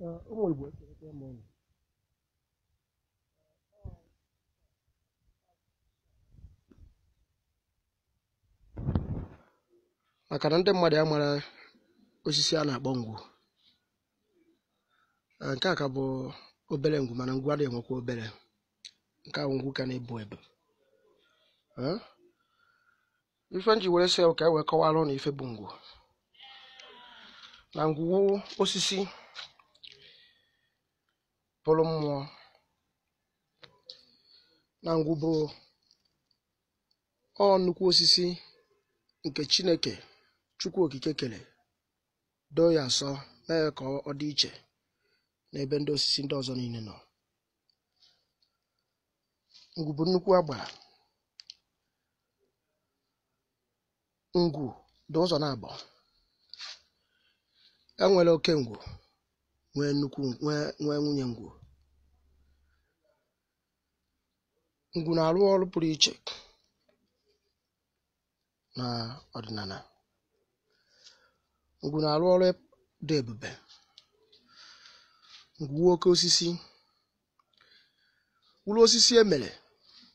ụmụ Igbo ekerịta ịmụ ụlọ maka na ndị mmadụ amara osisi a na-akpọ ngwu uh, nke a ka bụ obere ngwu mana ngwu adịghị enwekwa obere nke ahụ ngwu ka na-ebu ebu uh, ife nji were sị ka e wee kọwara ụnụ ife bụ ngwu na ngwu osisi bụrụ mmụọ na ngwụbụ ọ nnukwu osisi nke chineke chukwu okike kere doo ya asọ mee ka ọ dị iche n'ebe ndị osisi ndị ọzọ niile nọ ngwu nnukwu agbara ngwu dị ụzọ na abụọ enwere oke ngwu nwee nnukwu nwee nwunye ngwụ ngwụ na-arụ ọrụ pụrụ iche na ọdịnala ngwụ na-arụ ọrụ dị ebube ngwụ oke osisi mkpụrụ osisi emere